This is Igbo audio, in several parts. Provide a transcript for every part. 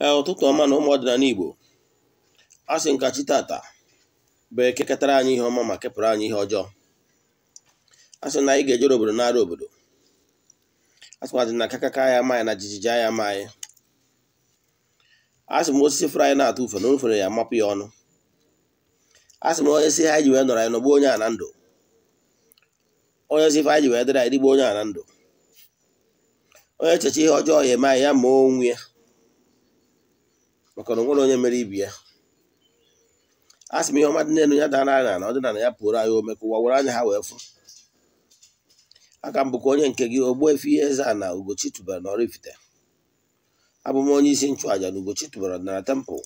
Eh, ụtụtụ ọma na ụmụ ọdịnala Igbo a sị nkachi tata bụ ketara anyị ihe ọma ma kepụrụ anyị ihe ọjọọ a sị na anyị ga-ejere obodo n'ara obodo a sịkwadị na kakaka ya amaghị na jijiji anya amaghị a sị m osisi fụrụ anyị na-atụ ufe na ofere ya mapụ ya ọnụ a sị m onye si ha ji wee nọrọ anyị nọgbuo onye a na ndụ onye si ife anyị ji wee dịrị anyị digbo onye a na ndụ onye echechi ihe ọjọọ ya eme anyị ya ma onwe ya maka na onye mere ibi ya a sị m ihe ọma dị n'elu ya dara anya na na ya pụrụ anyị ome ka ụwa were anya ha wee fụ aka m bụkwa onye nke gị ihe eze na Ugochi tubara na Oraifite abụ m onye isi nchụàja na Ugochi tubara na tempụl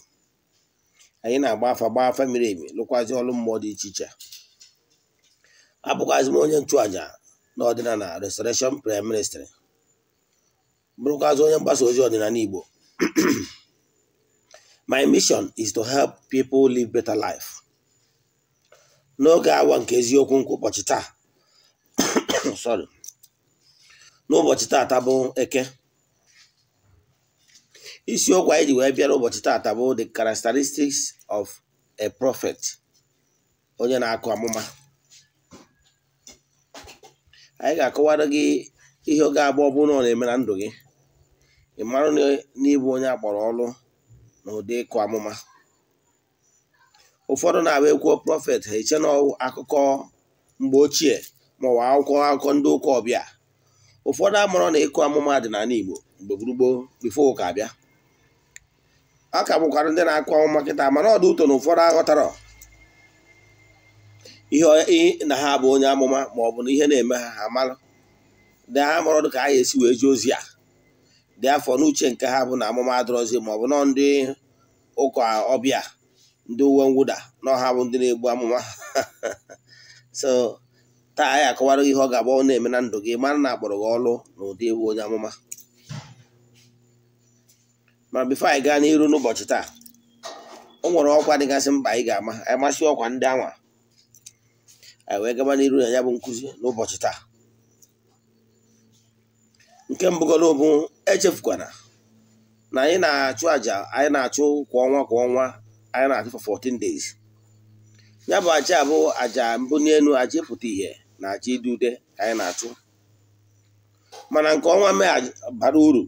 anyị na-agba afa gba afa miri emi lụkwazi ọrụ mmụọ dị iche iche abụkwazị m onye nchụàja na ọdịnala Restoration Prime Ministry bụrụkwazị onye mgbasa ozi ọdịnala Igbo my mission is to help people live better life n'oge awa nke eziokwu nke ụbọchị taa sorry n'ụbọchị taata bụ eke isiokwu anyị ji wee bịara ụbọchị taata bụ the characteristics of a prophet onye na-akụ amụma anyị ga-akọwara gị ihe oge abụọ bụ na ọ na-eme na ndụ gị ị marụ na ịbụ onye akpọrọ ọrụ n'ụdị ịkụ amụma ụfọdụ na-abịa ekwuo prọfet ha eche na akụkọ mgbe ochie maọwa akwụkwọ akụkọ ndị ụkọ ọbịa ụfọdụ amụrụ na ịkụ amụma dị n'ala Igbo mgbe gburugburu bifo ụka abịa a ka bụkwara ndị na-akụ amụma kịta mana ọdụ ụtọ na ụfọdụ aghọtara ihe na ha bụ onye amụma maọbụ na ihe na-eme ha ha mara ndị ha mụrụ dị ka a ga esi wee jee ozi a. dị afọ n'uche nke ha bụ na amụma adọrọzi ma ọ bụ nọ ndị ụka ọbịa ndị uwe mwụda na bụ ndị na-egbu amụma so taa anyị akọwara ihe ọ ga-agba ọ na-eme na ndụ gị mara na akpọrọ gị ọlụ na ụdị ewu onye amụma ma bifo anyị gaa n'iru n'ụbọchị taa o nwere ọkwa dịgasị mkpa anyị ga-ama anyị masị ọkwa ndị anwa anyị wee gaba n'iru na ya bụ nkụzi n'ụbọchị taa nke mbụgoro bụ echefukwana na anyị na-achụ aja anyị na-achụ kwa ọnwa kwa ọnwa anyị na-achụ 14 days ya bụ aja bụ aja mbụ n'elu aja ịpụta ihe na aja dị ude anyị na-achụ mana nke ọnwa mee bara uru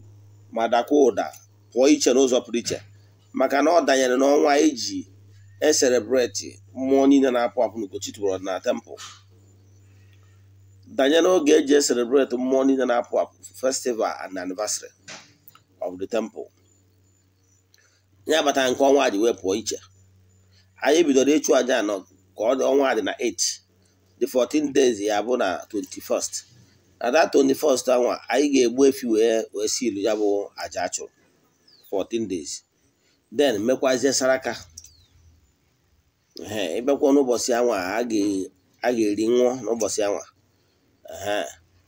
ma dakwa ụda pụọ iche n'ụzọ pụrụ iche maka na ọ danyere n'ọnwa iji e eserebreti mmụọ niile na-apụ apụ n'Ugochi tubelu na tempụl danye n'oge eji eselebreti mmụọ niile na-apụ apụ festival and anniversary of the temple ya abatara nke ọnwa dị wee pụọ iche anyị bidoro ịchụ aja anọ ka ọ dị ọnwa dị na 8 the 14 days ya bụ na 21st na that 21st anwa anyị ga-egbu efi wee wee si ilu ya bụ aja achụrụ 14 days then mekwazie saraka ee ịbịakwa n'ụbọchị anwa a ga-eri nwụọ n'ụbọchị anwa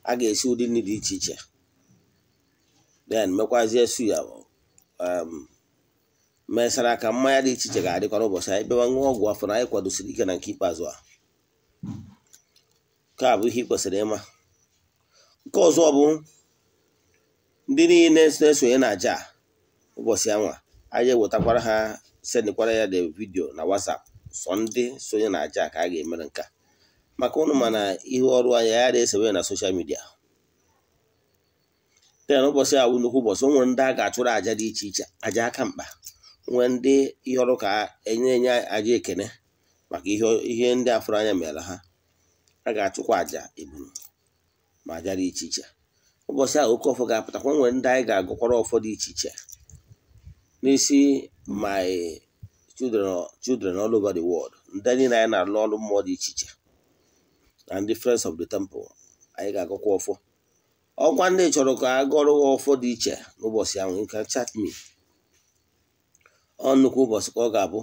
a ga-esi ụdị nri dị iche iche then mekwazie ya um, mesara ka mmanya dị iche iche ga-adịkwa n'ụbọchị anyị bịawa ṅụọ ọgwụ afọ na anyị kwadosiri ike na nke ikpeazụ a nke a bụ ihe ị kwesịrị ịma nke ọzọ bụ ndị niile na-esonye na aja ụbọchị anwa anyị ewetakwara ha sendikwara ya de vidio na WhatsApp sọ ndị sonye na aja ka a ga-emere nke a maka ụnụ mana ihe ọrụ anya ya na-esewe na soshal midia ten ụbọchị a nnukwu ụbọchị o nwere ndị a ga-achụrụ aja dị iche iche aja aka mkpa nwee ndị ihe ọrụ ka enye enye aja ekene maka ihe ndị afụrụ anya mere ha a ga-achụkwa aja eburu ma aja dị iche iche ụbọchị ahụ oke ọfọ ga-apụtakwa nwere ndị anyị ga-agụkwara ọfọ dị iche iche n'isi my children all over the world ndị niile anyị na-alụ ọrụ mmụọ dị iche iche and difference of the temple anyị ga-agụkwa ọfọ ọkwa ndị chọrọ ka a gụrụ ha ọfọ dị iche n'ụbọchị ahụ nke chat me ọ ụbọchị ka ọ ga-abụ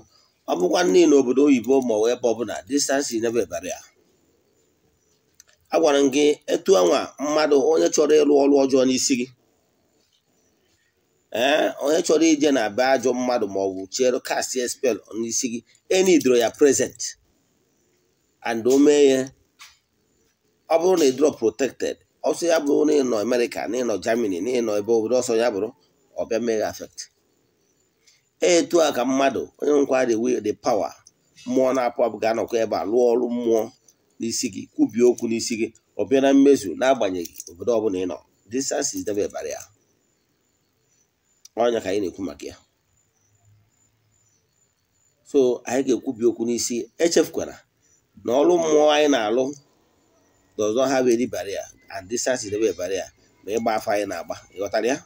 ọ bụkwa nne n'obodo oyibo ma ọ ebe ọbụla distansi nebebara ya a gwara m gị etu anwa mmadụ onye chọrọ ịrụ ọrụ ọjọọ n'isi gị ee eh, onye chọrọ ije na be ajọ mmadụ ma ọ bụ chere kastie spel n'isi gị e enidoro ya prezent and omee ya ọ bụrụ na ị drop protected ọsọ ya bụrụ na ịnọ Amerịka na ịnọ Germany na ịnọ ebe obodo ọsọ ya bụrụ ọbịa mmeghe afekt. etu a ka mmadụ onye nkwa the will the power mmụọ na-apụ apụ ga-anọkwa ebe a lụọ ọrụ mmụọ n'isi gị kwubie okwu n'isi gị ọ bịa na mmezu na-agbanyeghị obodo ọbụla ị nọ distance is never a barrier ọnya ka anyị na-ekwu maka ya so anyị ga-ekwubi okwu n'isi echefukwara na ọrụ mmụọ anyị na-alụ does not have any barrier and distance is never a barrier ma ịgba afọ anyị na-agba ịghọtara ya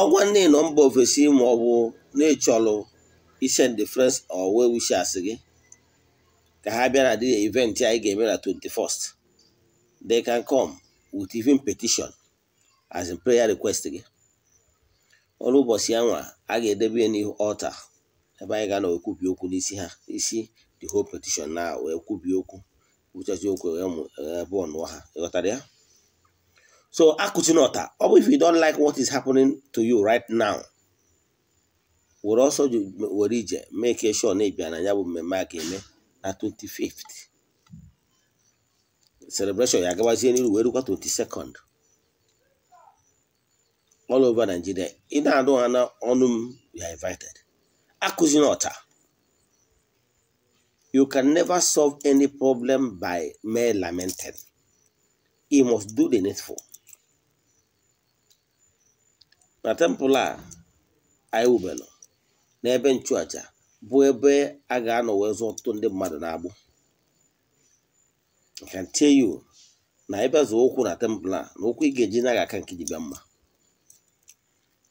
ọgwa nne nọ mba ofesi ma ọ bụ na-echọlụ isen de friends owe well gị ka ha bịa na dị event anyị ga-eme na 21st they can come with even petition as in prayer request gị ọrụ ụbọchị anwa a ga-edebe ya n'ihu ọlta ebe anyị ga na ekwubi okwu n'isi ha isi the whole petition na wee kwubi okwu wụchazie okwu emu mụ ebe ọnụọ ha ịghọtara ya so akụchinọta ọ bụ if you don't like what is happening to you right now were ọsọ were ije make sure na ịbịa na ya bụ mmemme a ga-eme na 25 celebration ya agabazie n'iru wee rukwa 22nd all over Nigeria ị na-anụ ha n'ọnụ m you are invited akụzinọta You can never solve any problem by mere lamenting. You must do the needful. Na temple a anyị na n'ebe nchụaja bụ ebe a ga-anọ wee ndị mmadụ na-agbụ. I can tell you na ebe zụ ụkwụ na temple a na ụkwụ ị ga-eji naghị aka nke ji bịa mma.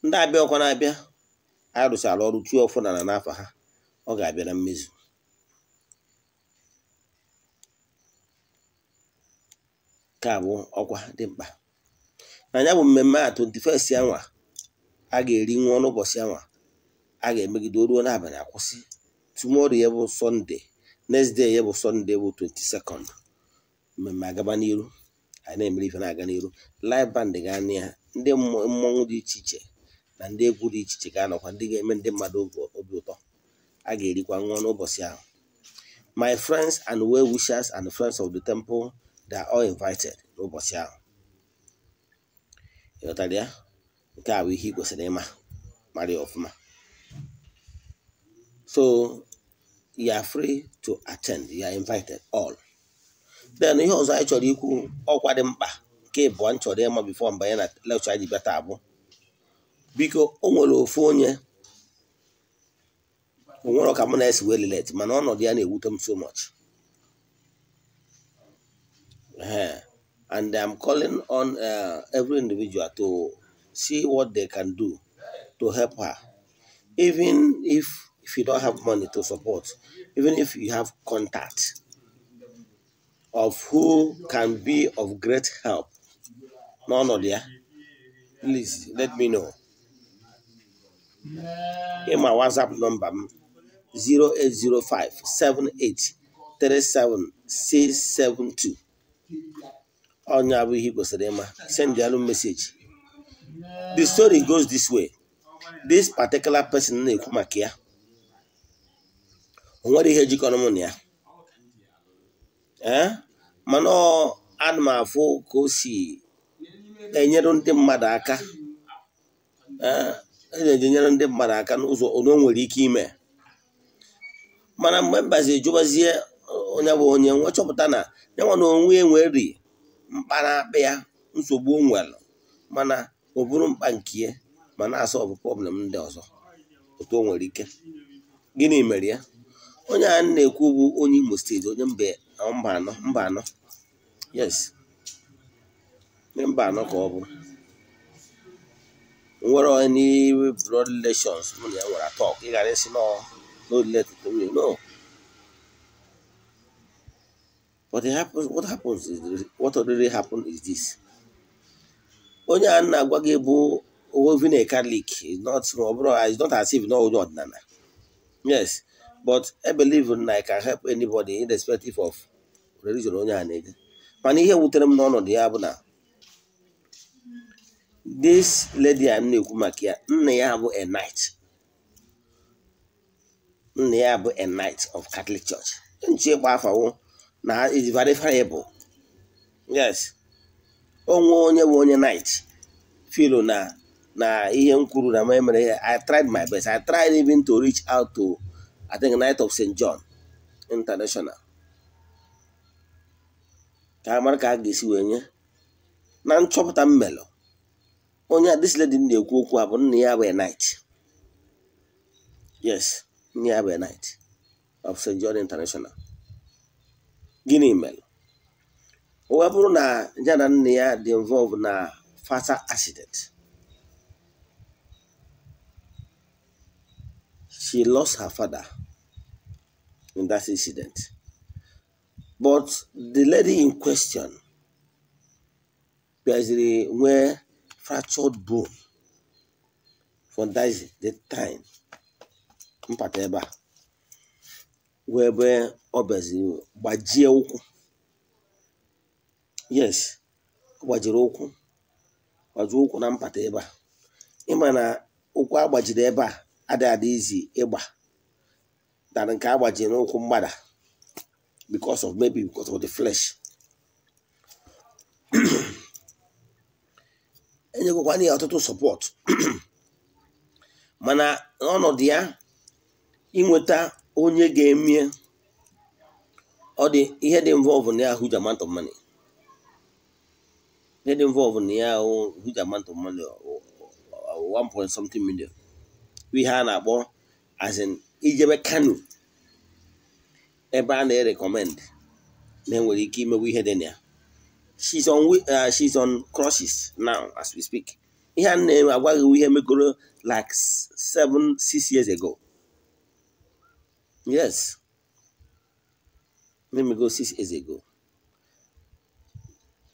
Ndị abịa ọkwa na-abịa anyị ala ọrụ tuo ọfụ na n'afọ ha ọ ga-abịa na mmezu. nke a bụ ọkwa dị mkpa na bụ mmemme a 21st yanwa a ga-eri nwa n'ụbọchị ụbọchị yanwa a ga-emegide ruo n'abalị akwụsị tomorrow ya bụ sọnde next ya bụ sọnde bụ 22nd mmemme agaba n'iru anyị na-emere ife na-aga n'iru live band gaa na ya ndị mmọnwụ dị iche iche na ndị egwu dị iche iche ga-anọkwa ndị ga-eme ndị mmadụ obi ụtọ a ga-erikwa nwa n'ụbọchị ahụ my friends and well wishers and friends of the temple they are all invited n'ụbọchị ahụ ịghọtara ya nke a bụ ihe ị kwesịrị ịma mara ya ọfụma so you are free to attend you are invited all then ihe ọzọ anyị chọrọ ikwu ọkwa dị mkpa nke ịbụọ m chọrọ ịma bifo mbanye na lekchọ anyị ji bịa taa bụ biko o nwere ofu onye o nwere ka m na-esi wee lelet mana ọnọdụ ya na-ewute m so much Uh, and I'm calling on uh, every individual to see what they can do to help her. Even if, if you don't have money to support, even if you have contact of who can be of great help, no, no, dear, please let me know. Here my WhatsApp number 0805 78 672. onye abụghị ihe ị kwesịrị ịma send alụ meseji. the story goes this way this particular person na-ekwu maka ya o nwere ihe jikọrọ mụ na ya ee eh? mana ana m afụ ka o si enyere ndị mmadụ aka eh? e eji enyere ndị mmadụ aka n'ụzọ o nwere ike ime mana mgbe mbazi jụbazie onye bụ onye nwe chọpụta na ya na onwe enweri mkpa na ya nsogbu nwere mana ọ bụrụ mkpa nke ya ma na-asa ọbụ problem ndị ọzọ otu o nwere ike gịnị mere ya onye a na-ekwu bụ onye Imo steeti onye mba anọ mba anọ yes onye mba anọ ka ọ bụ nwere onye blood relations mụ na ya atọ ị esi n'olile tutu nwunye But it happens, what happens is, what already happened is this. Onye a na-agwa gị bụ even a is not, is not as if no onye ọdịnala. Yes, but I believe na I can help anybody irrespective of religion onye a na-ege. Mana ihe wutere m n'ọnọdụ ya bụ na this lady a na-ekwu maka ya, nna ya bụ a knight. Nna ya bụ a knight of Catholic Church. Nche afọ afawo na is very variable yes onwe onye bụ onye night filo na na ihe m kwuru na ma i tried my best i tried even to reach out to i think night of st john international ka amara ka a ga-esi wee nye na nchọpụta mmelụ onye adisledi na-ekwu okwu a bụ nna ya bụ night yes nna ya bụ night of st john international gịnị mere ọ bụrụ na ya na nne ya dị involve na fatal accident she lost her father in that incident but the lady in question bịaziri nwee fractured bone for that the time mpata ebe a wee ebe ọ bịaziri gbajie ụkwụ yes ọ gbajiri ụkwụ gbajie ụkwụ na mpata ebe a ịma na ụkwụ agbajiri ebe a adịghị adị izi ịgba dara nke agbajiri n'ụkwụ mgbada because of maybe because of the flesh enyegokwana ya ọtụtụ support mana n'ọnọdụ ya inweta onye ga-emie ọ dị ihe dị involve na ya huge amount of money ihe dị involve na ya huge amount of money point something million ihe a na-akpọ as in ijebe kanu ebe a na-erekọmend na enwere ike imewe ihe dị na ya she's on uh, she's on crosses now as we speak ihe a na-agwaghị ihe megoro like seven six years ago Yes. Let me go six years ago.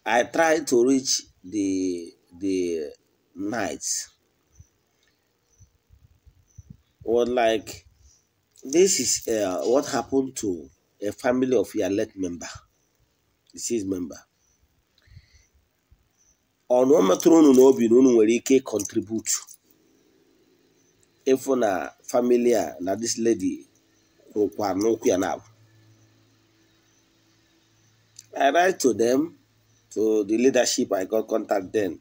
I tried to reach the the knights. Well, like this is uh, what happened to a family of your late member, deceased member. On one unu n'obi na unu nwere ike contribute If na family uh, na this lady kwukwara n'okwu ya na I write to them to the leadership I got contact then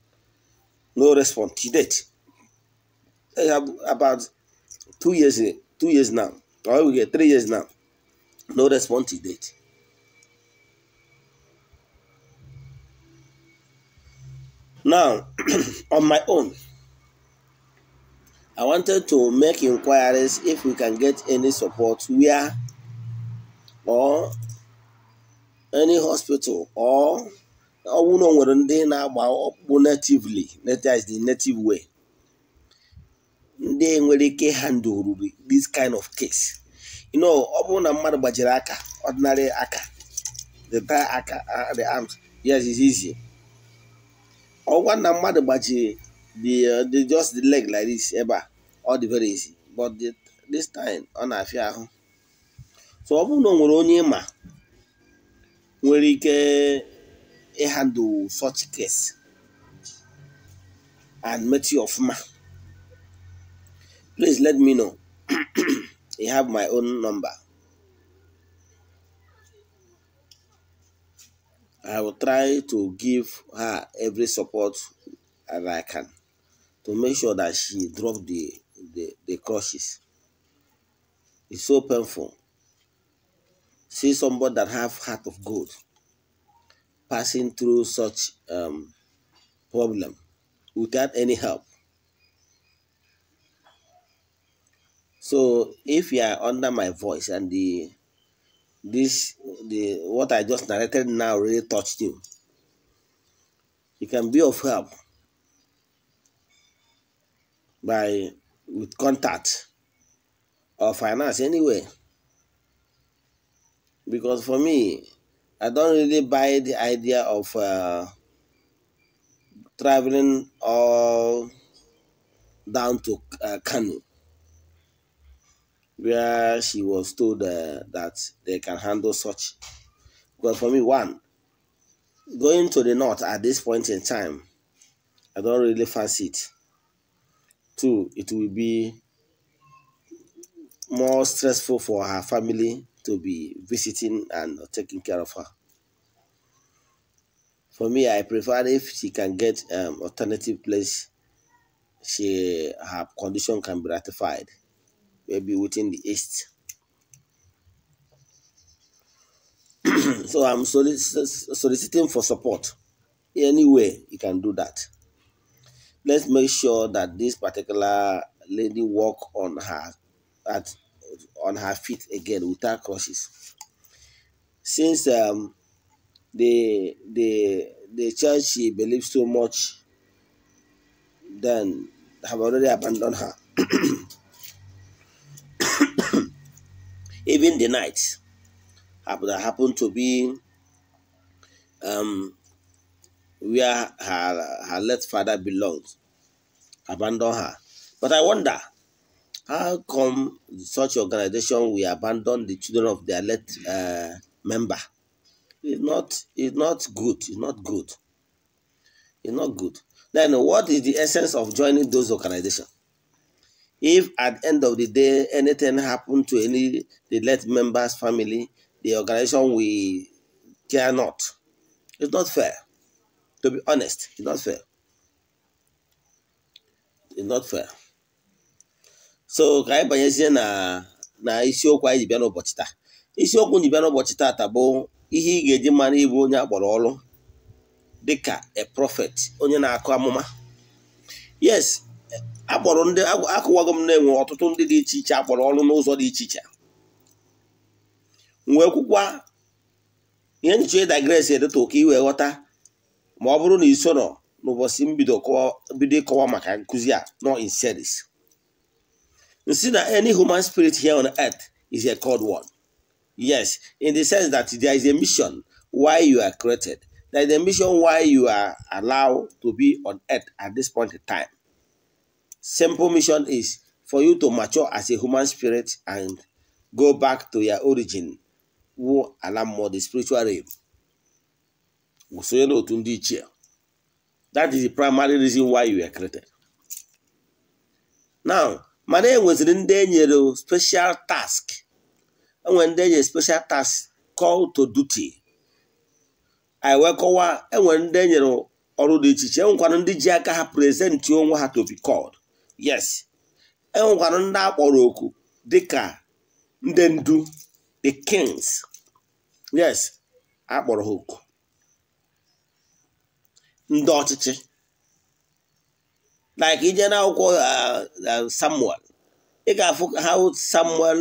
no response to date I have about two years two years now or we get three years now no response to date now on my own I wanted to make inquiries if we can get any support where or any hospital or ọnwụ na nwere ndị na-agba ọkpụkpụ natively is the native way ndị nwere ike handle this kind of case you know ọ bụrụ na mmadụ gbajiri aka ordinary aka the tie aka uh, the arms yes it's easy ọgwa na mmadụ gbajiri the just the leg like this ebe eh, a ọ dị very easy but this time ọ na-afịa ahụ so ọ bụrụ na ọ nwere onye ịma nwere ike ịhandụ such case and you of ma, please let me know I have my own number I will try to give her every support as I can to make sure that she drop the the, the crushes. It's so painful. See somebody that have heart of gold passing through such um, problem without any help. So if you are under my voice and the this the what I just narrated now really touched you, you can be of help by with contact or finance anyway. Because for me, I don't really buy the idea of uh, traveling all down to uh, Kanu, where she was told uh, that they can handle such. But for me, one, going to the north at this point in time, I don't really fancy it too it will be more stressful for her family to be visiting and taking care of her. For me, I prefer if she can get um, alternative place, she her condition can be ratified, maybe within the east. so I'm solic soliciting for support. Anyway, you can do that let's make sure that this particular lady walk on her at on her feet again without crutches since um, the the the church she believes so much then have already abandoned her even the night that happened to be um, where her her late father belongs abandon her. But I wonder, how come such organization we abandon the children of their late uh, member? It's not, it's not good. It's not good. It's not good. Then what is the essence of joining those organizations? If at the end of the day anything happened to any the late member's family, the organization we care not. It's not fair. To be honest, it's not fair. is not fair so ka anyị banyezie na na isiokwu anyị ji bịa n'ụbọchị taa isiokwu ji bịa n'ụbọchị taata bụ ihe ị ga-eji mara ịbụ onye akpọrọ ọrụ dịka a prophet onye na-akụ amụma yes akpọrọ ndị akụwago m na-enwe ọtụtụ ndị dị iche iche akpọrọ ọrụ n'ụzọ dị iche iche wee kwụkwa ihe nchọ ịdagres e edetụ ka i ghọta ma ọ bụrụ na i n'ụbọchị mbido ịkọwa maka nkụzi a nọ in series nsi na any human spirit here on earth is a cold one yes in the sense that there is a mission why you are created there is a mission why you are allowed to be on earth at this point in time simple mission is for you to mature as a human spirit and go back to your origin wụ ala the spiritual realm wụ sonye n'otu ndị ichie that is the primary reason why you were created now mana e ndị enyere special task enwe ndị enyere special task call to duty anyị wee kọwaa enwere ndị enyere ọrụ dị iche iche enwekwara ndị ji aka ha prezentị onwe ha to be called yes enwekwara ndị akpọrọ oku dịka ndị ndu the kings yes akpọrọ ha oku ndị ọchịchị like ije n'akwụkwọ uh, uh, samuel ị ga-afụ how samuel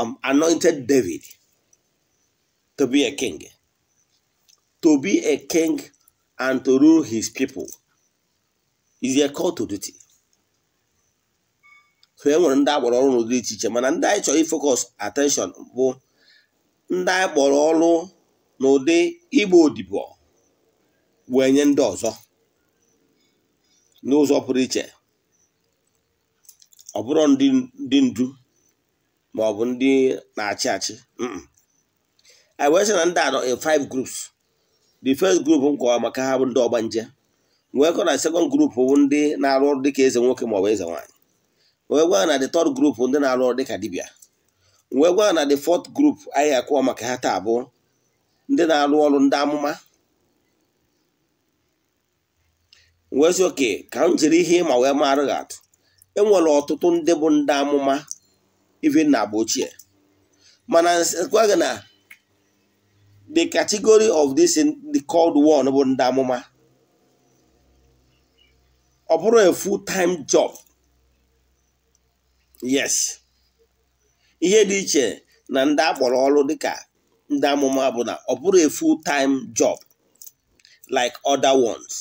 um, anointed david to be a king to be a king and to rule his people is a call to duty so e nwere ndị akpọrọ ọrụ n'ụdị iche iche mana ndị anyị chọrọ ifocus attention bụ ndị anyị kpọrọ ọrụ n'ụdị igbo odibo wee nye ndị ọzọ n'ụzọ pụrụ iche ọ bụrụ ndị ndu ma ọ bụ ndị na-achị achị anyị wee sị na ndị anọ in five groups the first group m maka ha bụ ndị ọgbanje wee kọ na second group bụ ndị na-arụ ọrụ dịka eze nwoke ma ọ bụ eze nwaanyị wee gwa na the third group ndị na-arụ ọrụ dịka dibia wee gwa na the fourth group anyị akọwa maka ha taa bụ ndị na-arụ ọrụ ndị amụma wezi oke ka m jiri ihe ịma wee mara gị atụ enwere ọtụtụ ndị bụ ndị amụma ivi na agba ochie mana nsekwa gị na the category of this the called one bụ ndị amụma ọ bụrụ a full time job yes ihe dị iche na ndị akpọrọ ọrụ dịka ndị amụma bụ na ọ bụrụ a full time job like other ones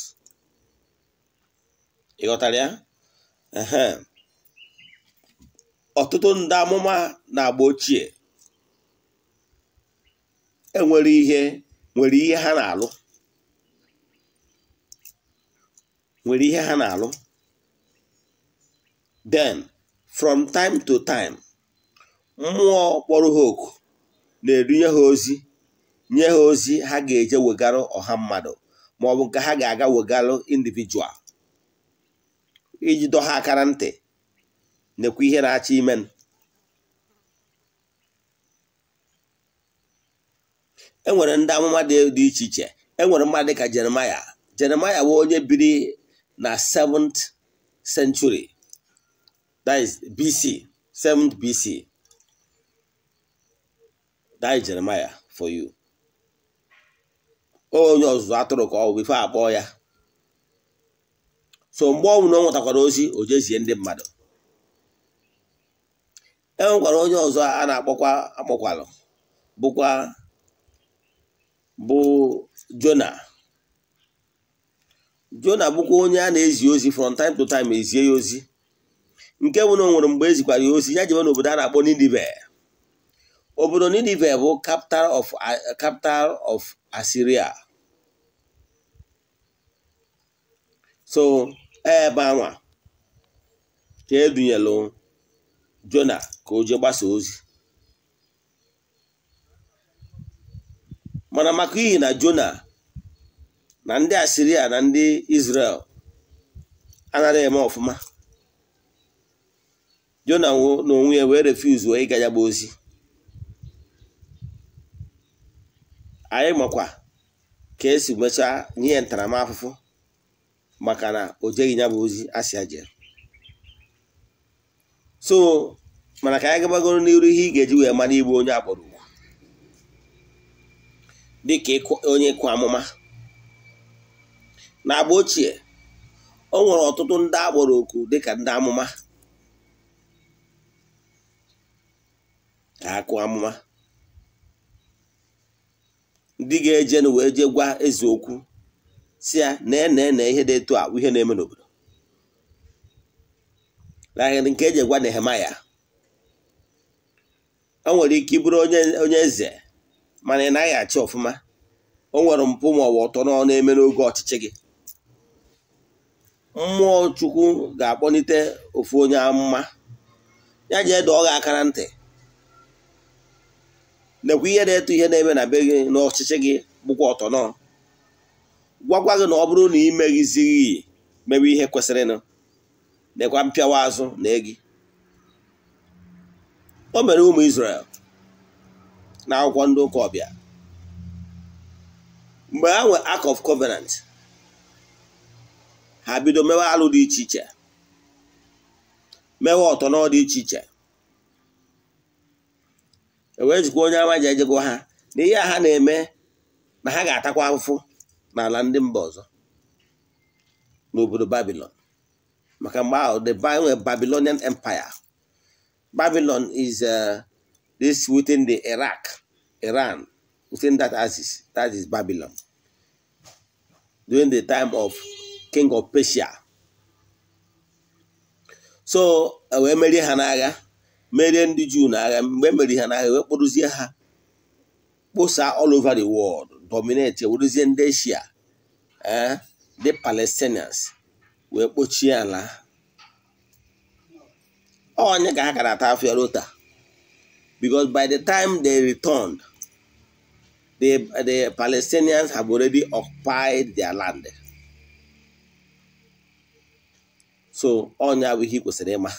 ịghọtara ya ọtụtụ ndị amụma na-agba ochie enwere ihe nwere ihe ha na-alụ nwere then from time to time mmụọ kpọrọ ha na-erunye ha ozi nye ha ozi ha ga-eje wegara ọha mmadụ maọbụ nke ha ga-aga wegarụ individual iji dọ akara aka na ntị nekwa ihe na-achọ ime e nwere ndị amụma dị iche iche enwere mmadụ ka jeremaya jeremaya bụ onye biri na 7th century is bc 7th bc is jeremaya for you onye ọzụzụ atụrụ ka ọ bụ ife akpọ ya so mgbe ọnwụ na ọ nwetakwara ozi o jezie ndị mmadụ e nwekwara onye ọzọ a na-akpọkwa akpọkwalụ bụkwa bụ jona jona bụkwa onye a na-ezi ozi from time to time ezie ya ozi nke bụ na o nwere mgbe ezikwara ya ozi ya na obodo a na-akpọ Ninive obodo Ninive bụ capital of capital of ebe anwa ka edunyelu jona ka o jee gbasa ozi mana maka ihi na jona na ndị asiria na ndị israel anaghị eme ọfụma jona onwe ya wee refuzu ịga ya gba ozi anyị makwa ka esi mechaa nye ntaramahụhụ maka na o jeghị ya bụ ozi si aje. so mana ka anyị gabagoro n'iru ihe ị ga-eji wee mara igbu onye akpọrọ ugwu dịka onye ịkụ amụma na agba ochie o nwere ọtụtụ ndị akpọrọ oku dịka ndị amụma ka akụ amụma ndị ga-eje na wee je gwa eziokwu. si ya na ene ihe dị etu a ihe na-eme n'obodo nahịrị nke eji gwa Nehemaya o nwere ike ịbụrụ onye eze mana ị naghị achị ọfụma o nwere mpụ ma ọ bụ ọtọ na-eme n'oge ọchịchị gị mmụọ chukwu ga-akpọlite ofu onye amụma ya jee dọọ gị aka na ntị nekwa ihe na-eto ihe na-eme na be gị n'ọchịchị gị bụkwa ọtọ n'ọ. gwakwa gị na ọ bụrụ na ị meghịzighị mewe ihe kwesịrịnụ mekwa mpịawa azụ na egi o mere ụmụ Izrel na akwụkwọ ndị ụka ọbịa mgbe ha nwe Ark of Covenant ha bido mewe alụ dị iche iche mewe ọtọ dị iche iche e wee jikwa onye ama ji ejego ha na ihe a ha na-eme na ha ga-atakwa afụfụ n'ala ndị mba ọzọ n'obodo Babylon maka mgbe ahụ the uh, Babylonian Empire Babylon is uh, this within the Iraq Iran within that axis that is Babylon during the time of King of Persia so wee merie ha n'agha merie ndị Juu n'agha mgbe emerie ha n'agha wee kpụrụzie ha kposaa all over the world dominate werezie ndị eshia ndị eh? palestinians wee kpochie ala oh, onye ka ha gara ata afia rota by the time they returned the, the palestinians have already occupied their land so onye abụ ihe ị kwesịrị ịma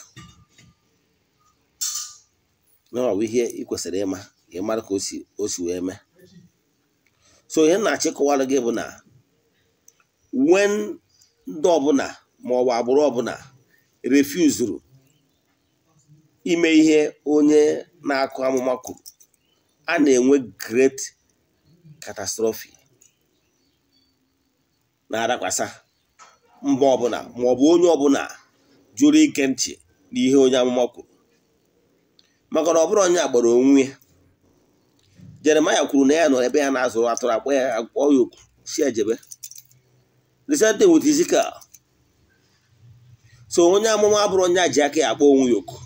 na ọ bụ ihe ị kwesịrị ịma ka ị mara ka o si wee mee so ihe na-achịkọwara gị bụ na wen ndị ọbụla ma ọ bụ agbụrụ ọbụla refuzuru ime ihe onye na-akụ amụma kwuru a na-enwe great catastrophe na-adakwasa mba ọbụla ma ọ bụ onye ọbụla jụrụ ike ntị n'ihe onye amụma kwuru maka na ọ bụrụ onye agbara onwe ya jeremaya kwuru na ya nọ ebe ya na-azụrụ atụrụ akpọ ya akpọ ya okwu si ejebe the same thing so onye amụma abụrụ onye ji aka ya akpọ onwe ya oku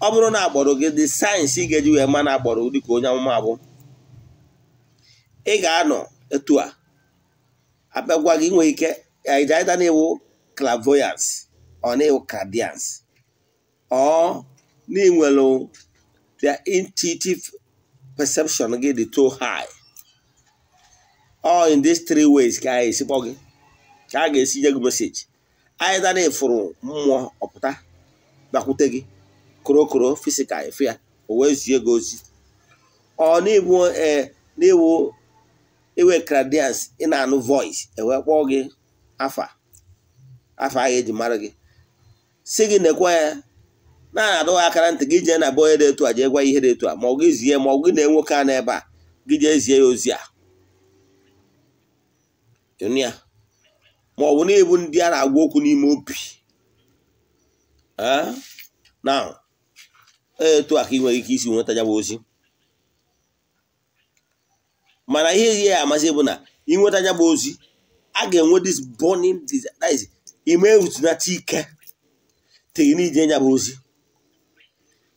ọ bụrụ na agbọrọ gị dị sayensị ị ga-eji wee ma na agbọrọ dịka onye amụma abụ ị ga-anọ etu a abịagwa gị nwee ike aịda na-ewu clairvoyance ọ na-ewu ọ na-enwelu their intuitive perception get the too high all in these three ways a ga-esi kpọ gị ka a ga-esi gị na ifuru mmụọ ọpụta bakwute gị korokoro fisikal efe ya o wee zie gị ozi ọ n'iwu e, n'iwu iwe credence ị na-anụ voice ewee gị afa afa a eji mara gị si gị nekwa na-adụghị akara ntị gị jee na be onye dị etu a jee gwa ihe dị etu a ma ọ gị zie ma ọ gị na nwoke a n'ebe a gị jee zie ya ozi a ya ma ọ bụ na ịbụ ndị a na-agwa okwu n'ime obi na e, etu a ka ị nwere ike isi nweta ya bụ ozi mana ihe ihe ya amasị bụ na ịnweta ya bụ ozi a ga-enwe this burning desire ime erutunata ike tiri n'ije ya bụ ozi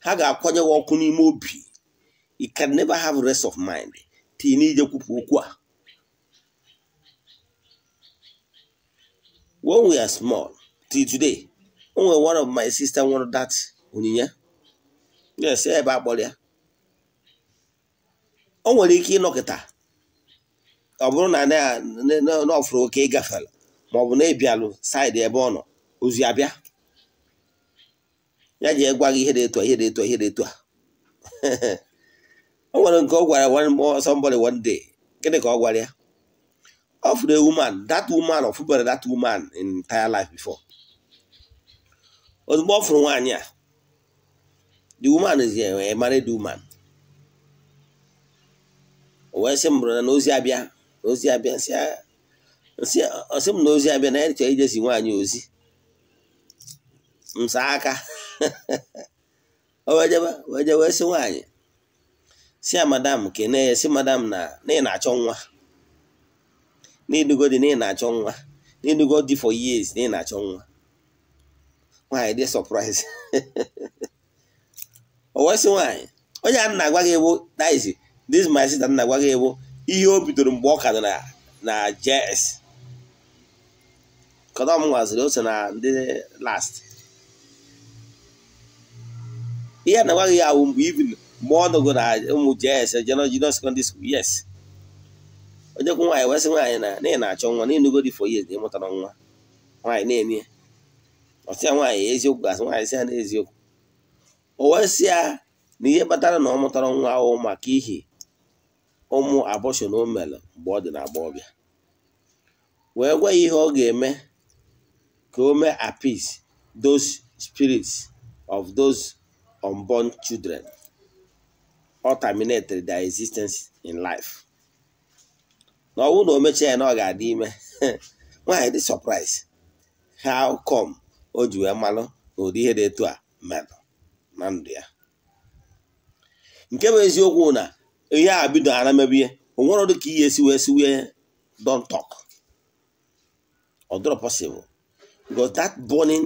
ha ga-akwanye ọkụ n'ime obi you can never have rest of mind tii n'ije kwupụ okwu a when we are small till today onwe one of my sister nwere that onyinye yes ebe akpọrọ ya o nwere ike ịnọkịta ọ bụrụ na n'ọfụrụ oke gafela ma ọ bụ na-ebialụ saịdị ebe ọ nọ ozi abịa ya ji egwa gị ihe dị etu a ihe dị etu a ihe dị etu a o nwere nke ọ gwara somebody one day gịnị ka ọ gwara ya of the woman that woman ọ fụbara that woman in entire life before ozugbo ọ fụrụ nwaanyị a the woman is a married woman o wee sị m na ozi abịa na ozi abịa sị m na ozi abịa na ya chọrọ ijezi nwaanyị ozi m aka O wee je wee sị nwaanyị si ya madam kene ya si madam na na ị na-achọ nwa n'idugo dị na ị na-achọ nwa n'idugo dị for years na ị na-achọ nwa nwaanyị dị surprise o wee sị nwaanyị onye a na-agwa gị ewu that Dis my sister na-agwa gị ewu ihe o bidoro mgbe ọ ka nọ na JS kọdọ nwaziri o na ndị last ihe na nwaghị ya awụ mgbe ibin mgbe ọ nọgo na ụmụ jes jeno junior secondary school yes onyekwu nwaanyị wesị nwaanyị na na ị na-achọ nwa na ịnugo dị for years na ịmụtara nwa nwaanyị na-eme ọsị ya nwaanyị eziokwu gasị nwaanyị sị ya na eziokwu o wee ya na ihe kpatara na ọ mụtara nwa ahụ maka ihi ụmụ abọshọn o mere mgbe ọ dị na agbọghọbịa wee gwa ihe ọ ga-eme ka o mee appease dos spirit of those unborn children or terminated their existence in life na ọnwụ na o mechaa ya na ọ ga-adị ime nwaanyị dị surprise how come o ji wee malụ na ụdị ihe dị etu a merụ na ndụ ya nke bụ eziokwu na ihe a bido ara mebie onwere dị ka ihe esi wee si wee don talk ọ dọrọ possible because that burning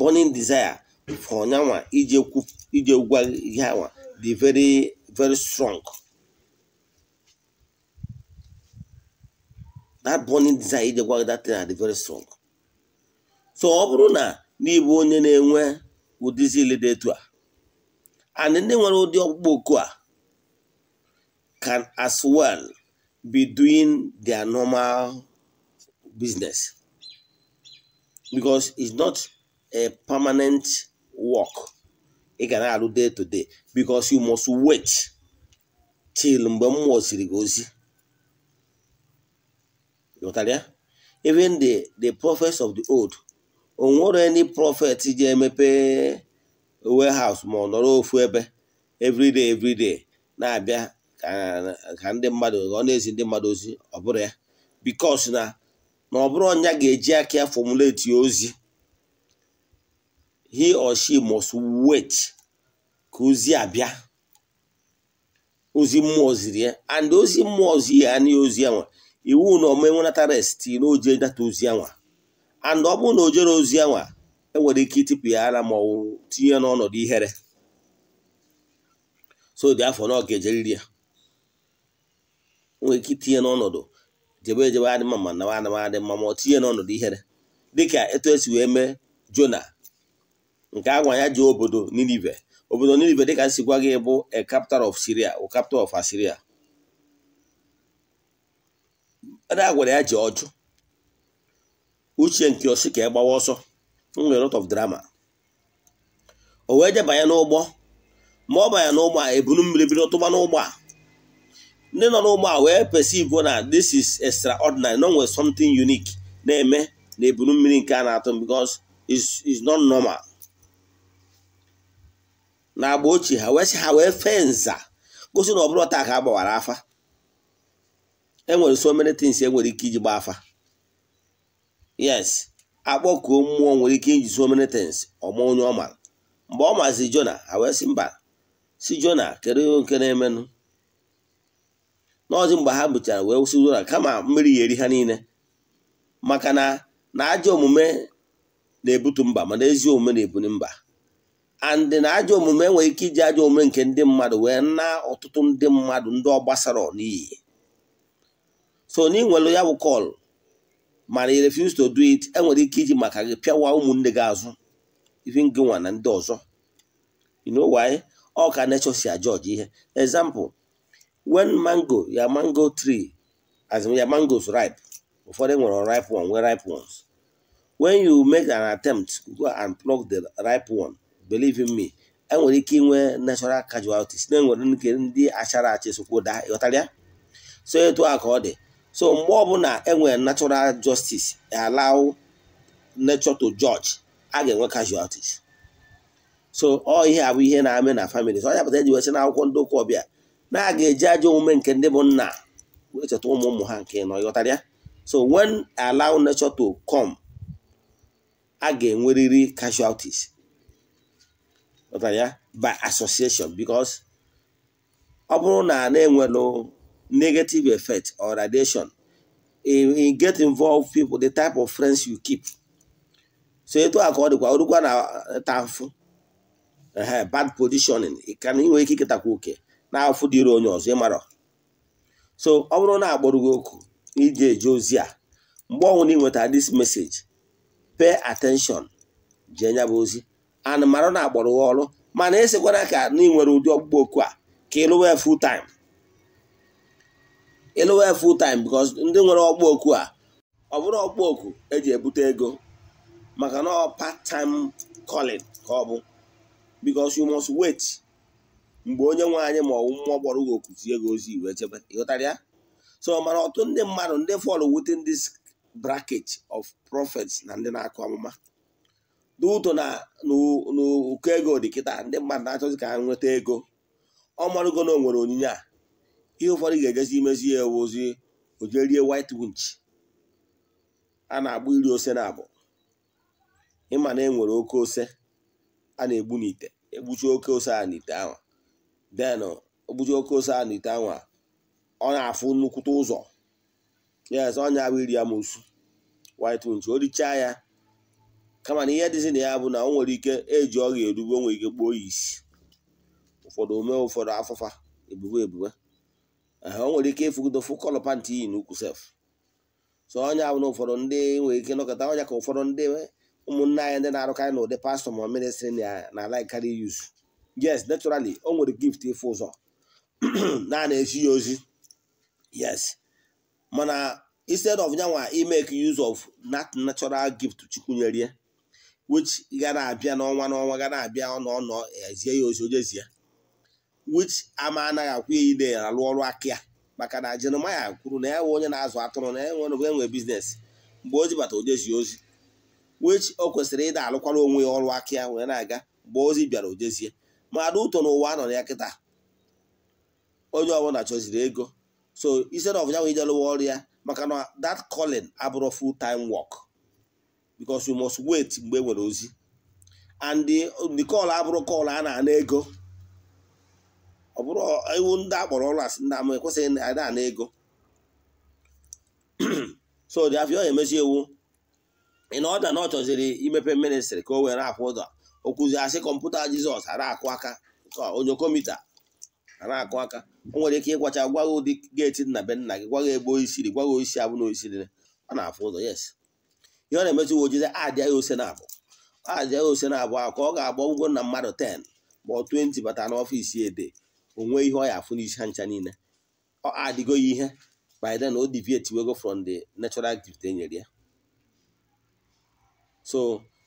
burning desire for nyanwa uh, ije gwa ihe awa dị uh, very very strong that burning desire ije gwa that thing dị uh, very strong so ọ bụrụ na n'ịbụ onye na-enwe ụdịzi ile dị etu a and ndị nwere ụdị ọkpụkpọ oku a can as well be doing their normal business because it's not a permanent work ị ga na-alụ day to day because you must wait till mgbe m mụziri gị ozi even the the prophets of the old o nwere any prophet ji emepe warehouse ma ọ nọrọ ofu ebe everyday everyday na-abịa ka ndị mmadụ ọ na-ezi ndị mmadụ ozi ọ bụrụ ya because na ọ bụrụ ọnya ga-eji aka ya formulate ozi he or she must wait ka ozi abịa ozi mmụọ ziri ya and ozi mmụọ zi ya anaghị ozi ya nwa iwu na ọma enwenata rest na data ozi ya nwa and ọ bụrụ na o jere ozi ya nwa enwere ike ịtịpụ ya ara ma ọ tinye n'ọnọdụ ihere so dị afọ na ọ ga-ejeriri ya nwere ike itinye n'ọnọdụ jebe ejebe adị mma ma nawa ma ọ tinye n'ọnọdụ ihere dịka etu esi wee mee jona nke a ya ji obodo Ninive obodo Ninive dịka gwa gị bụ a capital of Syria o capital of Assyria a gwara ya ji ọjụ uche nke osi ka e gbawa ọsọ nwere lot of drama o wee jebanye n'ụgbọ ma ọ banye n'ụgbọ a ebunu mmiri bido tụba n'ụgbọ a ndị nọ n'ụgbọ a wee perceive na this is extraordinary no nwere something unique na-eme na ebunu mmiri nke a na-atụ because is not normal na agba ochie ha wee sị ha wee fee nza gosi na ọ bụrụ taa ka a gbawara afa enwere so many enwere ike iji gbaa afa yes akpọkuo mmụọ nwere ike iji so many things ọma onye ọ mara mgbe ọ mazi jona ha wee sị mba si jona kedu ihe nke na-emenụ n'ọzi mgbe ha bụchara wee sị jona kama mmiri ya eri ha niile maka na na ajọ omume na-ebutu mba mana ezi omume na-ebuli mba andị na ajọ omume nwere ike iji ajọ omume nke ndị mmadụ wee na ọtụtụ ndị mmadụ ndị ọ gbasara n'iyi so na ị nwere ya bụ kọl mana i refuse to do it enwere ike iji maka gị pịawa ụmụnne gị azụ ife gị nwa na ndị ọzọ you know why ọ ka si ajọji ihe example when mango ya mango tree as ya mangoes ripe ụfọdụ e nwere ripe one nwee ripe ones when you make an attempt go and pluck the ripe one believe me enwere ike inwe natural casualties na-enwere nke ndị achara achị sokwo daa ịghọtara ya so etu a ka ọ dị so mgbe ọbụla enwere natural justice e allow nature to judge a ga-enwe casualties so ọ ihe abụ ihe na-amị na family so ọ yapụta eji wesị na akwụkwọ ndị ụka ọbịa na a ga-eji ajọ omume nke ndị bụ nna wee cheta ụmụ ụmụ ha nke nọ ịghọtara ya so wen allow nature to come a ga enweriri casualties ya by association because ọ bụrụ na na no negative effect or radiation in get involved people the type of friends you keep so etu a ka ọ dịkwa orukwa na eh, tafụ bad positioning ka na inwe ike iketakwa oke na afụ dịrị onye ọzọ ịmara so ọ bụrụ na agbụrụ gị oku iji eje ozi a mgbe ọnwụ na ị dis this message pay attention jee nya ozi anụmanụ na-agbọrọ gị ọrụ mana esekwana ka na ị nwere ụdị ọgbụgbọ oku a ka ịlụwe full time ịlụwe full time because ndị nwere ọgbụ oku a ọ bụrụ ọgbụ oku eji ebute ego maka na ọ part time calling ka ọ bụ because you must wait mgbe onye nwe anyị ma ọwụ mmụọ gbọrọ gị oku tinye gị ozi iwe chebe ịghọtara ya so mana ọtụtụ ndị mmadụ ndị fọlụ within this bracket of prophets na ndị na-akụ amụma n'ụtọ na n'ụkọ ego dị kịta ndị mmadụ na-achọzi ka ha nweta ego ọ marụgo na o nwere onyinye a ihe ụfọdụ ga-ejezi imezi ya ewu ozi ojerie white winch a na-agbụ iri ose na abụ e ịma na enwere oke ose a na-egbu n'ite egbuchi oke ose a n'ite ahụ den ogbuchi oke ose a n'ite ahụ ọ na-afụ nnukwute ụzọ yes ọnya bụ iri amosu white winch o richaa ya kama na ihe dịzi na ya bụ na o nwere ike eji ọrịa erube nwere ike gbuo ya isi ụfọdụ ome ụfọdụ afụfa ebube ebube o nwere ike ịfụgodofu kọlọ pantị iyi n'ukwu sef so onye bụ na ụfọdụ ndị nwere ike nọkọta ọnya ka ụfọdụ ndị ụmụnne anyị ndị na-arụkarị na ụdị pastọ ma ministri na laikari yuz yes naturally o nwere gift ịfụ ụzọ naanị esi ya ozi yes mana instead of nyanwa imeke use of that natural gift chukwu nyerie which ga na-abịa n'ọnwa n'ọnwa ga na-abịa ọ nọ ezie ya ozi ojezie wich ama anaghị akwụ ya ide alụ ọrụ aka ya maka na Jeremaya kwuru na ya nwe onye na-azụ atụrụ na enwe nwe enwe biznes mgbe ozi bata ojezi ozi wich o kwesịrị ịda alụkwara onwe ya ọrụ aka ya wee na-aga mgbe ozi bịara ojezie mmadụ ụtọ n'ụwa a nọ ya kịta onye ọbụla chọziri ego so instead na ya ijelụwa ọrụ ya maka na that calling abụrụ full time work because you must wait mgbe nwere ozi and the call abụrụ call a na-ana ego ọ bụrụ iwu ndị akpọrọ ọrụ asị ndị ama ekwesịghị ada ana ego so dị afọ ya emezi iwu ị na ọda na ọ chọziri imepe ministri ka o were akwụ ụzọ okwuzi asị kọmputa jizọs ara akụ aka onye komita ana akụ aka o nwere ike ịgwacha gwaghị ụdị geeti nna be nna gị gwaghị egbe o isiri gwaghị oisi abụ na oisiri ọ na-afụ ụzọ yes ihe ọ na-emezi uwe ojii adịa ya ose na abụ adịa ya ose na abụ ka ọ ga-agba ụgwọ na mmadụ 10 ma ọ 20 bata n'ọfịs ede onwe ihe ọ ya afụ n'isi ha ncha niile ọ adịgo ya ihe by then o wego from the natural activity enyere ya so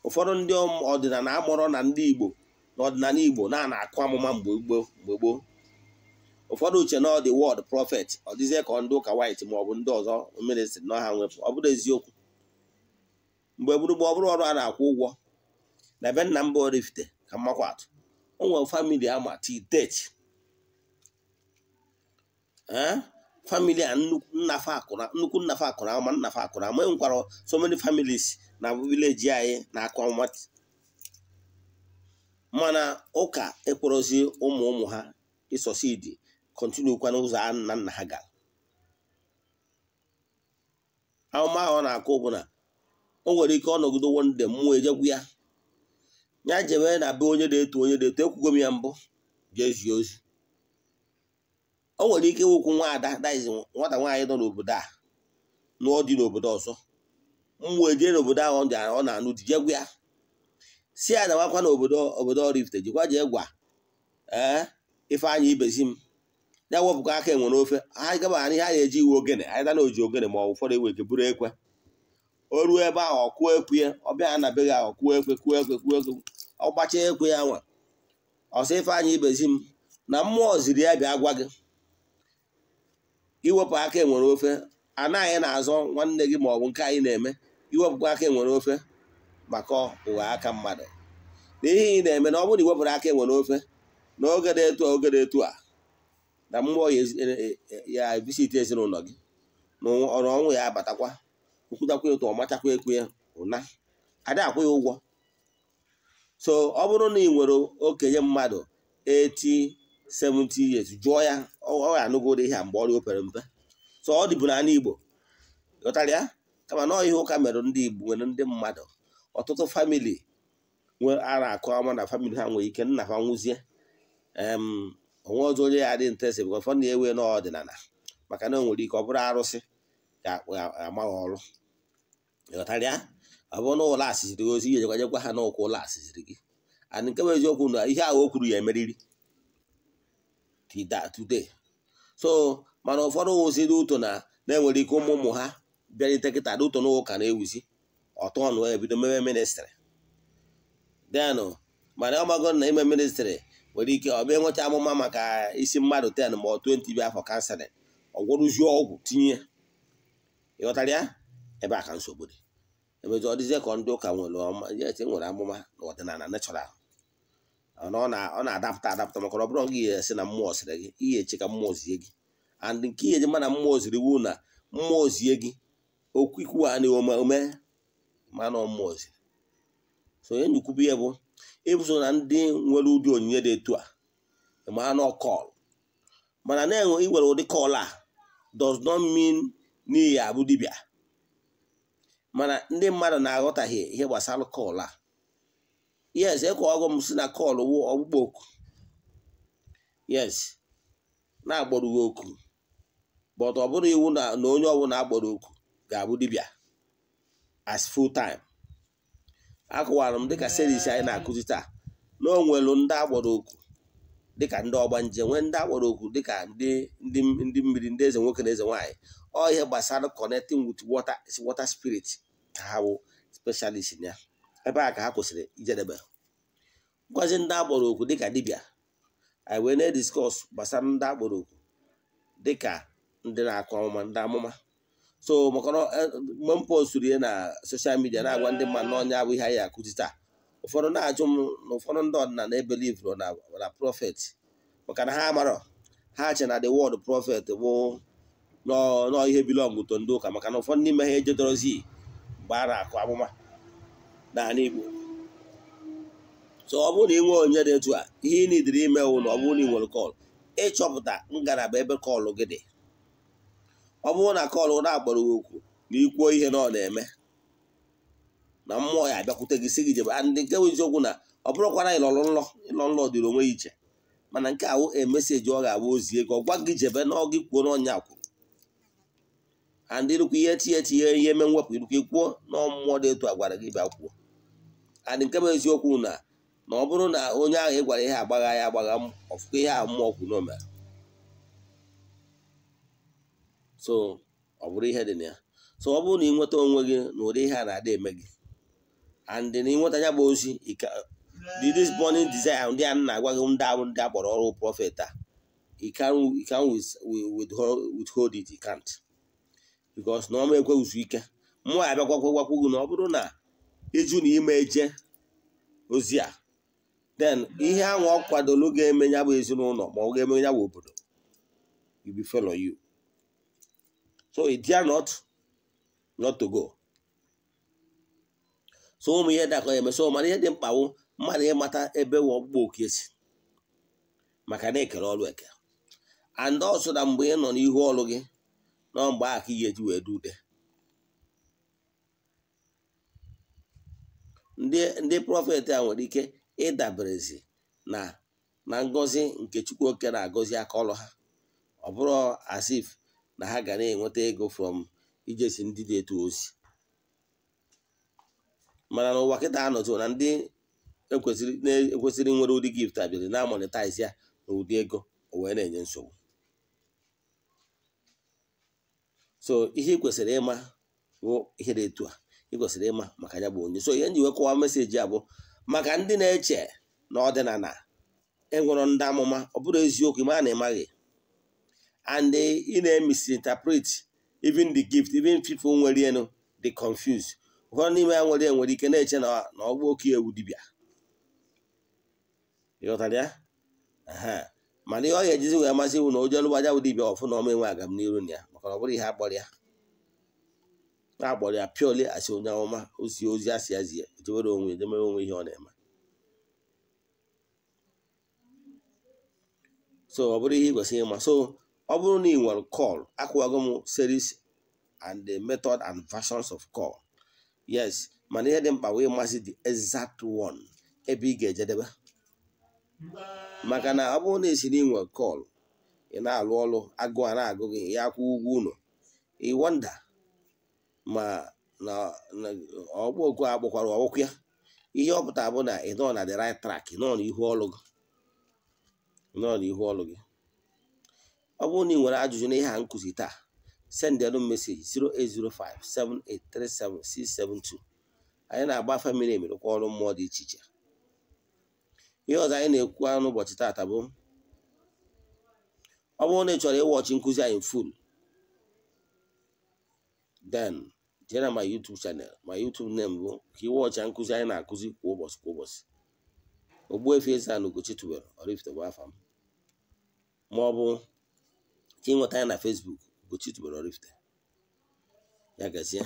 ụfọdụ ndị ọdịnala amụrọ na ndị igbo na ọdịnala igbo na na-akụ amụma mgbe gboo ụfọdụ uche na ọ dị wọd prọfet ọ dịzie ka ndị ụka white maọbụ ndị ọzọ mmiri nọ ha nwepụ ọ bụrụ eziokwu mgbe gburugbo ọ bụrụ ọrụ a na-akwụ ụgwọ na ebe nna mba Oraifite ka mmakwa atụ o nwere famili ama titeti famili a nnukwu nnafa akụrụ ama nnafa akụrụ ama e nwekwara so many families na vileji anyị na-akụ nwata mana ụka ekporozi ụmụ ụmụ ha isosidi kwa n'ụzọ a nna nna ha gara ahụmahụ ọ na-akụ bụ na o nwere ike ọ nọgido wonde mmụọ ejegwu ya ya jebe na be onye na-eto onye na-eto ekwugo m ya mbụ jee ozi o nwere ike ịwụkwu nwa ada daizi nwata nwaanyị nọ n'obodo a nụọ dị n'obodo ọzọ mmụọ ejee n'obodo ahụ ọ na-anụ di jegwu ya si ya na nwakwa na obodo obodo Rift jikwa jee gwa ee Ifeanyị ibezi m ya wepụkwa aka enwere ofe ha gaba ha ihe na-eji iwe ogene anyị dana oji ogene ma ọ ụfọdụ ewe ike buru ekwe o ruo ebe ahụ ọ kụọ ekwe ya ọ bịa anabeghị ahụ kụọ ekwe kụọ ekwe kụọ ekwe ọ gbacha ekwe ya nwa ọsọ Ifeanyị ibezi m na mmụọ ziri ya bịa gwa gị iwepụ aka enwere ofe anaghị na-azọ nwanne gị ma ọ bụ nke anyị na-eme iwepụkwa aka enwere ofe maka ụwa aka mmadụ n'ihi ị na-eme na ọ bụrụ na iwepụrụ aka enwere ofe na oge na-etu oge na-etu a na mmụọ e, e, e, ya ebisite ezinụlọ gị na ọrụ ọnwụ ya abatakwa nkwụtakwa ụtọ ọ machakwa ekwe ya ụna ada akwụ ya ụgwọ so ọ bụrụ na ị nwere okenye mmadụ 80 70 years jụọ ya ọ anụgo anụgoro ihe mgbe ọrịa opere mpe so ọ dịbụ n'ala Igbo ghọtara ya kama na ihe ụka mere ndị Igbo nwere ndị mmadụ ọtụtụ famili nwere ara akụ ama na famili ha nwere ike nna ha nwụzie onwe ọzọ onye ya dị nte esi bụkwa fọ na-ewe n'ọdịnala maka na o nwere ike ọ bụrụ arụsị ama ha ọrụ ghọtara ọ bụrụ na ụlọ asịsịrị ozi ihe jekwanyekwa ha n'ụkwụ ụlọ asịsịrị gị and nke bụ eziokwu na ihe ahụ o kwuru ya emeriri today so mana ụfọdụ wụzi dị ụtọ na na-enwere ike ụmụ ụmụ ha bịarite kịta dị ụtọ n'ụka na-ewuzi ọtọ ọnụ ebido meme ministrị denụ mana ọmago na ime ministrị nwere ike ọ bịa nweta amụma maka isi mmadụ 10 ma ọ 20 bịa afọ kanselin ọgwụrụzie ọgwụ tinye ịghọtara ya ebe a ka nsogbu dị emezi ọ dịzie ka ndị ụka nwere esi e e nwere amụma na ọdịnala nechọral ọ na-adapụta adapụta maka ọ bụrụ gị esi na mmụọ sịrị gị ihe eche ka mmụọ zie gị and nke ihe ji mana mmụọ ziri wu na mmụọ zie gị okwu ikwu a na ome mana mmụọ ziri so onye nyekwubu ihe bụ ịbụso na ndị nwere ụdị onyinye dị etu a mana kọl mana na-enwe iwere ụdị kọl a does not mean n'ihi abụ dibịa mana ndị mmadụ na-aghọtaghị ihe gbasara kọl a yes e ọgụ m si na kọl wụ oku yes na-agbọrọ oku but ọ bụrụ iwu na onye ọbụla agbọrọ oku ga-abụ dibịa as full time akọwara m dịka seris anyị na-akụzi taa na o nwelu ndị agbọrọ oku dịka ndị ọgbanje nwee ndị agbọrọ oku dịka ndị mmiri ndị eze nwoke na eze nwaanyị ihe gbasara connecting with water water spirit ha bụ specialist ya ebe a ka ha kwụsịrị ijedebe ngwazi ndị agboro okwu dịka Dibia anyị wee na-ediskọs gbasara ndị agboro okwu dịka ndị na-akụ amụma ndị amụma so maka e, mgbe m postụrụ ihe na soshal midia na-agwa ndị mmadụ n'ọnya abụ ihe anyị akụzi taa ụfọdụ na-ajụ m na ụfọdụ ndị ọdịnala ebelivro na prọfet maka na ha amarọ ha che na the wod prọfet bụ nọọ ihe bilọngụ to ndị maka na ụfọdụ n'ime ha ejedorozi gbara na-akụ amụma n'ala Igbo so ọ bụrụ na ị nwee onye dị etu a ihe ị nidiri ime wụ na ọ bụrụ na ị nwere kọl ịchọpụta ngalaba ebe kọlụ gị dị ọ bụrụ na kọlụ na gị okwu na ikwuo ihe na ọ na-eme na mmụọ ya abịakwute gị si gị jebe ndị nke bụ eziokwu na ọ bụrụkwara ịlọrọ nlọ ịlọ nlọ dịrị onwe ya iche mana nke ahụ emeseji ọ ga-abụ ozi ego ọ gwa gị jebe na ọ gị kwuo n'ọnya akwụ andị ịrụkwa ihe tinye tinye ihe eme mwepụ irukwa ikwuo na ọmụmụ dị etu a gwara gị bịa kwuo andị nke bụ eziokwu na na ọ bụrụ na onye ahụ ị gwara ihe agbagha ya agbagha ọfụkọ ihe ahụ mmụọ kwu so ọ bụrụ ihe dị na ya so ọ bụrụ na ị nweta onwe gị na ụdị ihe a na-adị eme gị and na ịnweta ya bụ ozi this burning desire ndị a na-agwa gị ndị ahụ ndị a kpọrọ ọrụ prọfet a you withhold it you bikos na ọma ekweghịzu ike mụọ ya abịagwagwagwagwu na ọ bụrụ na ịjụ na ime eje ozi a den ihe ahụ ọ kwadolu ga-eme ya bụ ezinụlọ ma ọ ga-eme ya bụ obodo you be fellow you so it not not to go so ụmụ ihe dakọ eme so mana ihe dị mkpa wụ mmadụ ịmata ebe ọgbụgba oke si maka na ekere ọrụ eke and mgbe ị nọ n'ihu ọrụ gị nọọ mgbe ahụ ka ị ga-eji wee ndị ndị prọfet a nwere ike ịdaberezi na na ngọzi nke chukwu oke na-agọzi aka ọlụ ha ọ bụrụ asif na ha gara na-enweta ego from ijesi ndị dị etu ozi mana na ụwa kịta anọzi na ndị e ekwesịrị nwere ụdị gift abịarị na-amonetize ya na ego o wee na-enye nsogbu so ihe ị kwesịrị ịma bụ ihe dị etu a i kwesịrị ịma maka ya bụ onye so ihe njiwe kọwa meseji a bụ maka ndị na-eche na ọdịnala enwere ndị amụma ọ bụrụ eziokwu ịma na ịmaghị and ị na interpret even the gift even people nwere enu dị confuse ụfọdụ n'ime ya nwere nwere ike na-eche na ọgbụ oke ewu dibịa ịghọtara ya mana ihe ọ ga-ejizi wee amasị iwu na ojelụgbaja bụ dibịa ọfụ na ọma enwe agamniru na ya na ọ bụrụ ihe akpọrọ na-akpọrọ ya asị onye ọma osi ozi asị ya zie onwe edemere onwe ihe ọ na-eme so ọ bụrụ ihe ị kwesịrị ịma so ọ bụrụ na ị nwere call akwụwago m series and the method and versions of call yes mana ihe dị mkpa wee masị the exact one ebe ị ga-ejedebe maka mm. na ọ bụrụ na esi na nwere kọl ị na-alụ ọrụ agụ a na-agụ gị ya akwụ ụgwọ ụlọ ịwọnda ma na ọgbọ oku a kpọkwara ọgwụkwụ ya ihe ọ pụtara bụ na ị nọ na the right track nọ n'ihu ọlụ gị nọ n'ihu gị ọ bụrụ na ị nwere ajụjụ n'ihe a nkụzi taa sendịrụ meseji 08057837672 anyị na-agba famili emerekwa ọrụ mmụọ dị iche iche ihe ọzọ anyị na-ekwu n'ụbọchị taata bụ ọ bụrụ na ị chọrọ ịwọchi nkụzi anyị full den jee na my YouTube channel my YouTube name bụ ka ịwọchi nkụzi anyị na-akụzi kwa ụbọchị kwa ụbọchị efe Eze-Ana Ugochi tubelu Oraifite bụ afa m ma ọ bụ ka anyị na Facebook Ugochi tubelu Oraifite ya gazie